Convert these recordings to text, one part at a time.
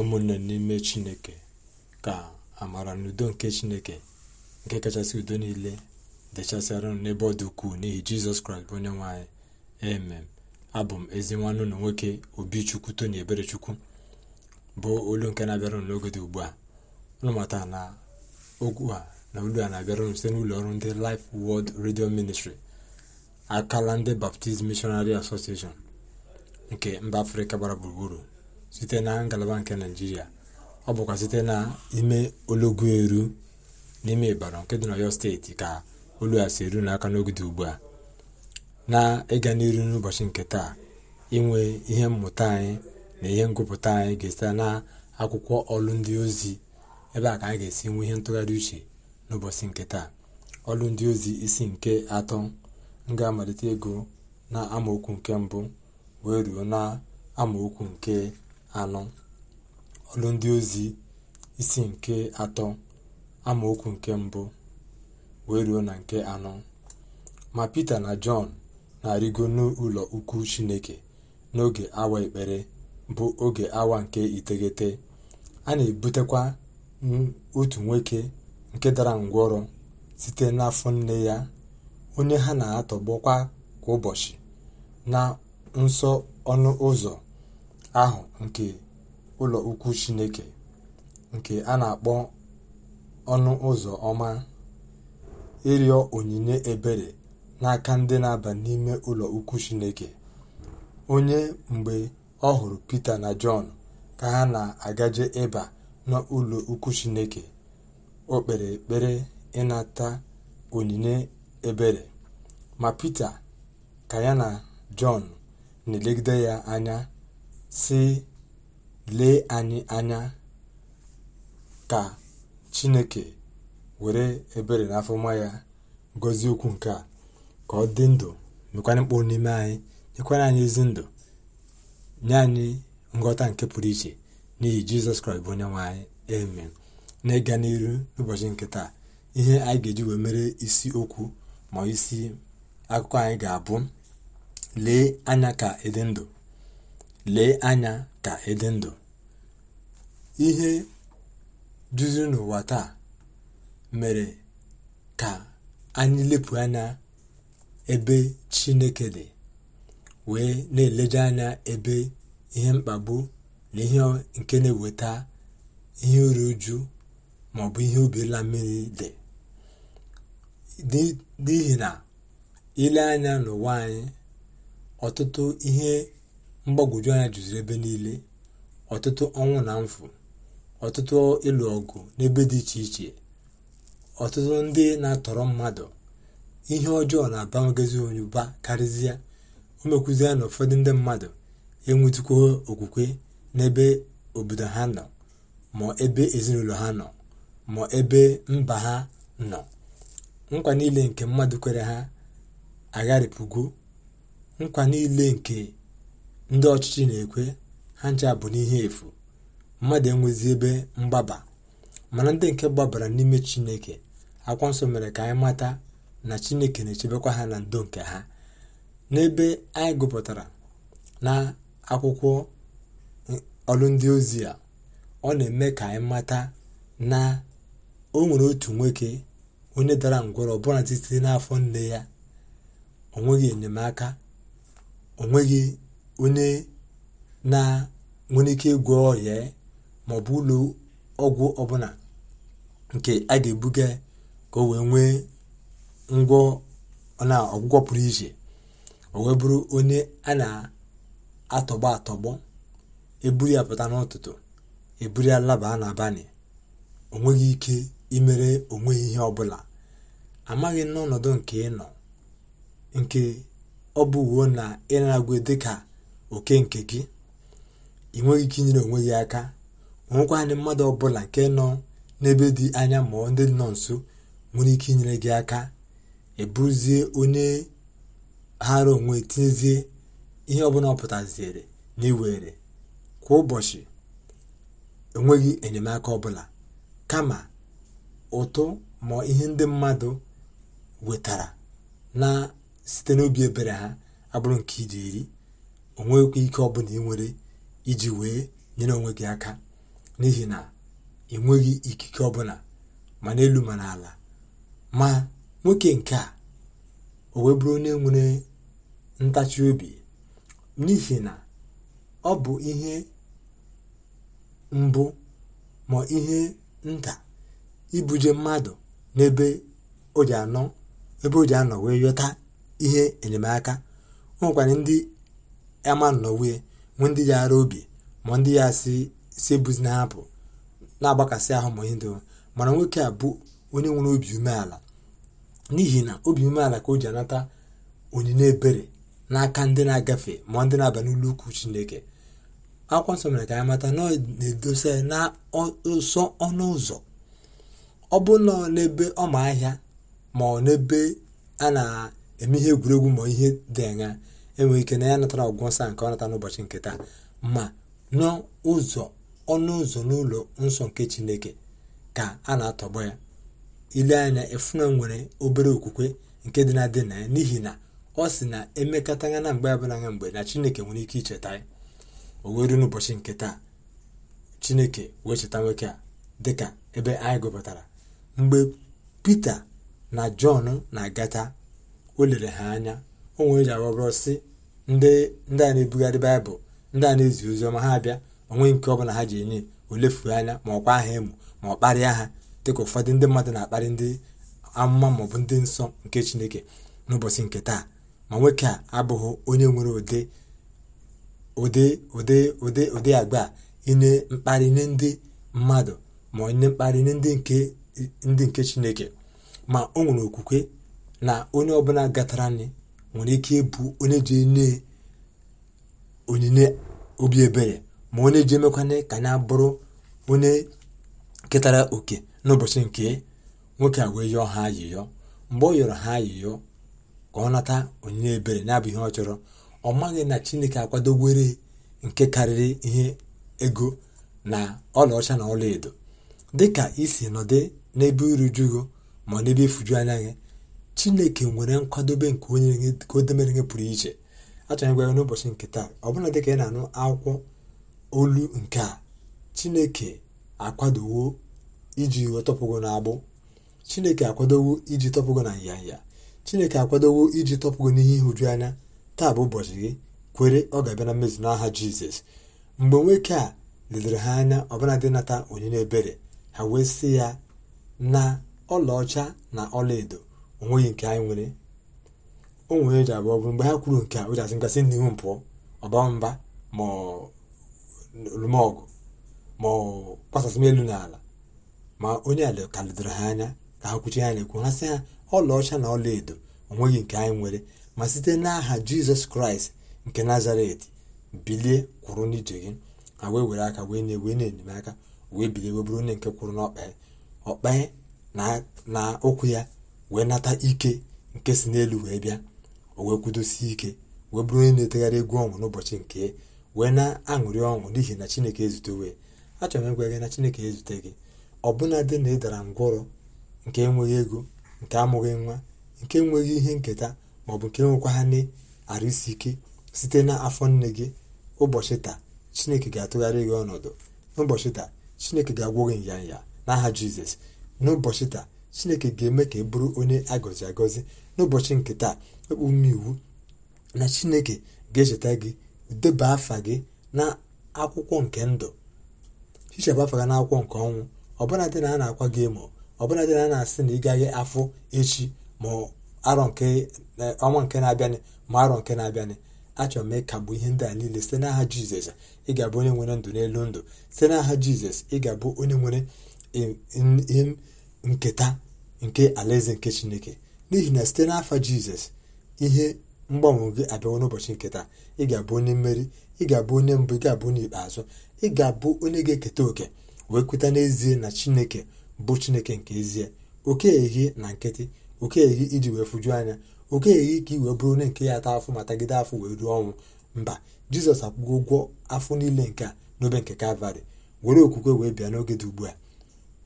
ụmụnne n'ime chineke ka amara na udo nke chineke nke kachasị udo niile dechasịara unu n'ebe ọ dị ukwuu n'ihi jizọs kraịst bụ onye nwanyị emem abụ m ezi nwanne ụlọ nwoke obichukwu ebere eberechukwu bụ olu nke na-abịara unu n'oge dị ugbu a ụnụ na okwu a na olu a na-abịara unu site n'ụlọ ọrụ ndị Life wọld redio Ministry akala ndị Baptist mishonari Association nke mba afrịka gbara gburugburu site na ngalaba nke naijiria ọ bụkwa site n'ime ologu eru n'ime ịbara nke dị n'ọyọ steeti ka olu a si eru n'aka n'ogide ugbu a na-ịga n'iru n'ụbọchị nke taa inwe ihe mmụta anyị na ihe ngụpụta anyị ga-esite na akwụkwọ ọlụ ndị ozi ebe a ka anyị ga-esi nwe ihe ntụgharị uche n'ụbọchị nke taa ọlụ ndị ozi isi nke atọ m ga-amalite ego na amaokwu nke mbụ wee ruo na amaokwu nke anọ ọlụ ndị ozi isi nke atọ amaokwu nke mbụ wee ruo na nke anọ ma pita na jọn na-arịgo n'ụlọ ukwu chineke n'oge awa ekpere bụ oge awa nke iteghete a na-ebutekwa otu nwoke nke dara ngwọrọ site n'afọ nne ya onye ha na-atọgbọkwa kwa ụbọchị na nsọ ọnụ ụzọ ahụ nke ụlọ ukwu chineke nke a na-akpọ ọnụ ụzọ ọma ịrịọ onyinye ebere n'aka ndị na-aba n'ime ụlọ ukwu chineke onye mgbe ọ hụrụ pita na jọn ka ha na-agaje ịba n'ụlọ ukwu chineke o kpere ịnata onyinye ebere ma pita ka ya na jọn na-elegide ya anya sị lee anyị anya ka chineke were ebere na mma ya gozie okwu nke a ka ọ dị ndụ mekwanye mkpụrụ n'ime anyị nyekwanye anyị ezi ndụ nye anyị nghọta nke pụrụ iche n'ihi jizọs kraịst bụ onye nwanyị anyị amen na ịga n'iru n'ụbọchị nke taa ihe anyị ga-eji wee mere isi okwu ma isi akụkọ anyị ga-abụ lee anya ka ịdị ndụ lee anya ka ịdị e ndụ ihe duzi n'ụwa taa mere ka anyị lepụ anya ebe chineke dị wee na-eleje anya ebe ihe mkpagbu na ihe nke na-eweta ihe uru uju maọbụ ihe obirila mmiri dị n'ihi na ile anya n'ụwa anyị ọtụtụ ihe mgbagwoju anya jụziri ebe niile ọtụtụ ọnwụ na mfu ọtụtụ ịlụ ọgụ n'ebe dị iche iche ọtụtụ ndị na-atọrọ mmadụ ihe ọjọọ na-abawagazi onyụba karịzịa o mekwuzie na ụfọdụ ndị mmadụ enwetukwo okwukwe n'ebe obodo ha nọ ma ebe ezinụlọ ha nọ ma ebe mba ha nọ nkwa niile nke mmadụ kwere ha agharịpụgo nkwa niile nke ndị ọchịchị na-ekwe ha ncha bụ n'ihe efu mmadụ enwezi ebe mgbaba mana ndị nke gbabara n'ime chineke akwa nsọ mere ka anyị mata na chineke na-echebekwa ha na ndo nke ha n'ebe anyị gụpụtara na akwụkwọ e, ọrụ ndị ozi a ọ na-eme ka anyị mata na o nwere otu nwoke onye dara ngwọrọ ọbụla site n'afọ nne ya o enyemaka onweghị onye na nwere ike ịgwọ ọrịa maọbụ ụlọ ọgwụ ọbụla nke a ga-ebuga ka o wee nwee ngwọ na ọgwụgwọ pụrụ iche o wee bụrụ onye a na-atọgbọ atọgbọ eburu ya pụta n'ụtụtụ eburu ya laba n'abalị o ike imere onwe ihe ọbụla amaghị n'ọnọdụ nke ị nọ nke ọ bụ na ị na-agwe dịka oke nke gị ị nweghị ike inyere onwe gị aka nwekwanị mmadụ ọbụla nke nọ n'ebe dị anya ma ọ ndị nọ nso nwere ike inyere gị aka ebuzie onye ghara onwe tinyezie ihe ọbụla ọ pụtaziere na iwere kwa ụbọchị enweghị enyemaka ọbụla kama ụtụ ma ihe ndị mmadụ wetara na site n'obi ebere ha abụrụ nke iri iri o ike ọbụla ị nwere iji wee nyere onwe gị aka n'ihi na ị nweghị ikike ọbụla ma n'elu ma n'ala ma nwoke nke a o wee bụrụ onye nwere ntachi obi n'ihi na ọ bụ ihe mbụ ma ihe nta ibuje mmadụ n'ebe o ji anọ wee yọta ihe enyemaka o ndị Eman Nọwe nwee ndị ya ara obi ma ndị ya si si ebuzi na hapụ na-agbakasị ahụ ma ihe dịwo mana nwoke a bụ onye nwere obi umeala n'ihi na obi umeala ka o ji anata onyinye ebere n'aka ndị na-agafe ma ndị na-aba n'ụlọ ukwu Chineke akwa nsọ mere ka anyị mata na ọ na-edosa na ọnụ ụzọ ọ bụ nọ n'ebe ọma ahịa ma ọ n'ebe a na-eme ihe egwuregwu ma ihe dị anya enwere ike na ya natara ọgwụgwọ nsa nke ọ nata n'ụbọchị nke taa ma n'ụzọ ọnụ ụzọ n'ụlọ nsọ nke chineke ka a na-atọgbọ ya ile anya efuna nwere obere okwukwe nke dị na dị na ya n'ihi na ọ sị na emekọtagha na mgbe abụla anya mgbe na chineke nwere ike icheta ya o were n'ụbọchị nke taa chineke wee cheta nwoke a dịka ebe anyị gụpụtara mgbe pita na jọn na-agata o lere ha anya onwe eji aghọbụrụ si ndị ndị a na-ebugharị baịbụl ndị a na-ezi ozi ọma ha abịa onwe nke ọ bụla ha ji enye olefu anya ma ọkwa aha emu ma ọ kparịa ha dịka ụfọdụ ndị mmadụ na-akparị ndị amụma maọbụ ndị nsọ nke chineke n'ụbọchị nke taa ma nwoke a abụghị onye nwere ụdị ụdị ụdị ụdị ụdị agba inye mkparị nye ndị mmadụ ma onye mkparị nye ndị nke ndị nke chineke ma o nwere okwukwe na onye ọbụla gatara anyị nwere ike ịbụ onye ji enye onyinye obi ebere ma onye ji emekwanye ka ya bụrụ onye ketara oke n'ụbọchị nke nwoke a wee yọọ ha ayịyọ mgbe ọ yọrọ ha ayịyọ ka ọ nata onyinye ebere na-abụ ihe ọ chọrọ ọ maghị na chineke akwadowere nke karịrị ihe ego na ọlaọcha na ọlaedo dịka isi nọdụ n'ebe irujugo ma n'ebe ifuju anya gị chineke nwere nkwadobe nke onye ka o demere ihe pụrụ iche achọghị gwa ya n'ụbọchị nke taa ọbụla ka ị na-anụ akwụkwọ olu nke a chineke akwadowo iji tọpụgo n'agbụ chineke akwadowo iji tọpụgo na nyanya chineke akwadowo iji tọpụgo n'ihe ihuju anya taa bụ ụbọchị gị kwere ọ ga-abịa na mmezu n'aha jizọs mgbe nwoke a ledere ha anya ọbụla dị nata onyinye ebere ha wee sị ya na ọlaọcha na ọlaedo onweghị nke anyị nwere o nwere eji abụọ bụrụ mgbe ha kwuru nke a o ji asị nkasị n'ihu mpụ pụọ ọba mba ma ọ kpasasị m elu n'ala ma onye ala ka ledoro ha anya ka ha kwuchi ha na-ekwu ha sị ha ọlaọcha na ọla edo onweghị nke anyị nwere ma site n'aha jizọs kraịst nke nazaret bilie kwụrụ n'ije gị ha wee were aka wee na-ewe na-enyemaka wee bilie wee bụrụ onye nke kwụrụ n'ọkpa ọkpa na ụkwụ ya wee nata ike nke si n'elu wee bịa o wee kwudosie ike wee bụrụ onye na-etegharị egwu ọnwụ n'ụbọchị nke wee na-aṅụrị ọṅụ n'ihi na chineke ezute achọrọ m ịgwa gị na chineke ezute gị ọbụna dị na ị dara ngwọrọ nke enweghị ego nke amụghị nwa nke enweghị ihe nketa bụ nke nwekwa ha na-arụ isi ike site na afọ nne gị ụbọchị taa chineke ga-atụgharị gị ọnọdụ n'ụbọchị taa chineke ga agwụ gị nyanya n'aha jizọs n'ụbọchị taa chineke ga-eme ka ị e bụrụ onye agọzi agọzi n'ụbọchị nke taa ekpu ume iwu na chineke ga-echeta gị deba afa gị na akwụkwọ nke ndụ hichapụ afa gị na akwụkwọ nke ọnwụ ọbụla dị na a na-akwa gị emo ọbụla dị na a na-asị na ị gaghị afọ echi ma arọ nke e, ọnwa nke na-abịanị ma arọ nke na-abịanị achọrọ m ịkagbu ihe ndị a niile site n'aha jizọs ị ga-abụ onye nwere ndụ n'elu ndụ site n'aha jizọs ị ga-abụ onye nwere e, nketa nke alaeze nke chineke n'ihi na site n'afọ jizọs ihe mgbanwe gị abịawo n'ụbọchị nketa ị ga-abụ onye mmeri ị ga-abụ onye mbụ ị ga-abụ onye ikpeazụ ị ga-abụ onye ga-eketa oke wee kweta n'ezie na chineke bụ chineke nke ezie oke ehi na nkịtị oke ehi iji wee fụjuo anya oke ehi ka i wee bụrụ onye nke ya ata afọ ma tagide afọ wee ruo ọnwụ mba jizọs akwụgo ụgwọ afọ niile nke a n'obe nke kalvarị were okwukwe wee bịa n'oge dị ugbu a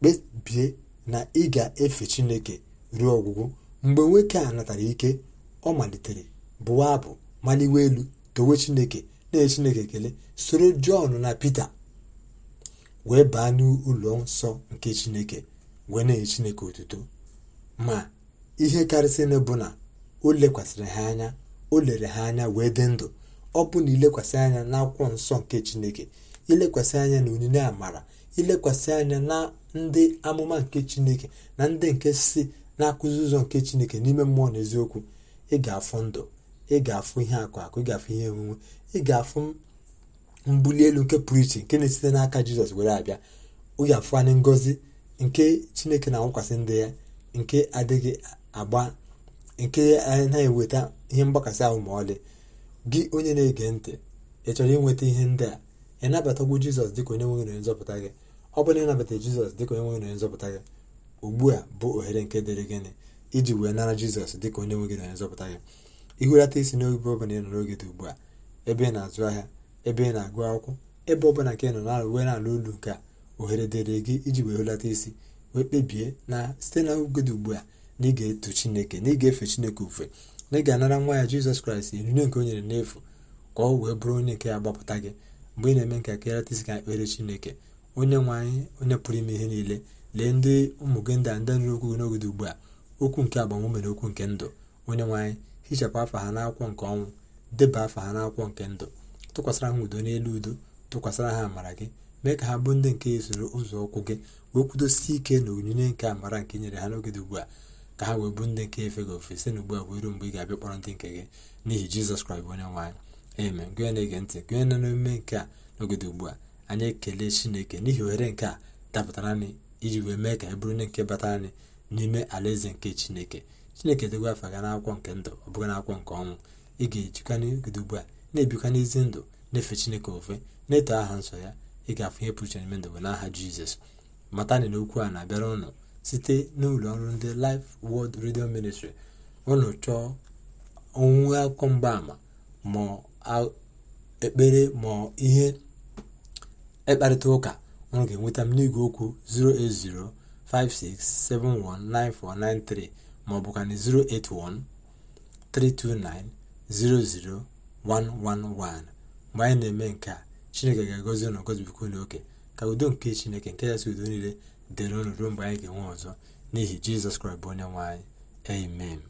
kpebie na ị ga-efe chineke ruo ọgwụgwụ mgbe nwoke a natara ike ọ malitere bụwa abụ maliwe elu towe chineke na-enye chineke ekele soro jọn na pita wee baa n'ụlọ nsọ nke chineke wee na-enye chineke otuto ma ihe na bụ na o lekwasịrị ha anya o lere ha anya wee dị ndụ ọ bụ na ilekwasị anya n'akwụkwọ nsọ nke chineke ilekwasị anya na onyinye amara ilekwasị anya na ndị amụma nke chineke na ndị nke si na-akụzi ụzọ nke chineke n'ime mmụọ na eziokwu ị ga-afụ ndụ ị ga-afụ ihe akụ akụ ị ga-afụ ihe onwunwe ị ga-afụ mbuli elu nke pụrụ iche nke na-esite n'aka jizọs were abịa ọ ga-afụ anyị nke chineke na-anwụkwasị ndị ya nke adịghị agba nke na-eweta ihe mgbakasị ahụ ma ọlị gị onye na-ege ntị ị chọrọ inweta ihe ndị a ị nabatagwo jizọs dịka onye nwere nzọpụta gị ọ bụrụ na ịnabata jizọs dịka onye nwe gị na nzọpụta gị ugbu a bụ ohere nke dịrị gịnị iji wee nara jizọs dịka onye nwe gị na onye nzọpụta gị ihulata isi n'oge ọbụla ị nọ n'oge dị ugbu a ebe ị na-azụ ahịa ebe ị na-agụ akwụkwọ ebe ọbụla ka ị nọ na uwe na ala olu nke a ohere dịrị gị iji wee hulata isi wee kpebie na site na oge dị ugbu a na ị ga-eto chineke na ị ga-efe chineke ofe na ị ga-anara nwa ya jizọs kraịst onyinye nke o nyere n'efu ka ọ wee bụrụ onye nke ya gbapụta gị mgbe ị na-eme nke ka ịrata isi ka ekpere chineke onye nwe anyị onye pụrụ ime ihe niile lee ndị ụmụ gị ndị a ndị nụrụ okwu ugbu a okwu nke agbamume na okwu nke ndụ onye nwanyị hichapụ afa ha n'akwụkwọ nke ọnwụ deba afa ha n'akwụkwọ nke ndụ tụkwasịra ha udo n'elu udo tụkwasịra ha amara gị mee ka ha bụ ndị nke soro ụzọ ụkwụ gị wee kwudosie ike na onyinye nke amara nke nyere ha n'oge ugbu a ka ha wee bụ ndị nke efe gị ofe site n'ugbu a wee ruo mgbe ị ga-abịa kpọrọ ndị nke gị n'ihi jizọs kraịst onye nwanyị eme na-ege ntị na n'omume nke a n'oge ugbu a anyị ekele chineke n'ihi oghere nke a dapụtara anyị iji wee mee ka anyị e bụrụ nke batara anyị n'ime alaeze nke chineke chineke dịgwa afa ga n'akwụkwọ nke ndụ ọ bụghị n'akwụkwọ nke ọnwụ ị ga-ejikwa n'ogide ugbu a na-ebikwa n'ezi ndụ na-efe chineke ofe na-eto aha nsọ ya ị ga-afụ ihe pụrụ iche n'ime ndụ n'aha jizọs matani na okwu a na-abịara ụnụ site n'ụlọ ọrụ ndị laif wọld redio Ministry ụnụ chọọ onwe akwụkwọ mgbaama ma ekpere ma ihe ịkparịta ụka unu ga-enweta m n'igwe okwu 08056719493 maọbụ kana 00111 mgbe anyị na-eme nke a chineke ga-agọzi unu gọzibikwa unu oke ka udo nke chineke nke ya si udo niile dịrị unu ruo mgbe anyị ga-enwe ọzọ n'ihi jizọs kraịst bụ onye nwe amen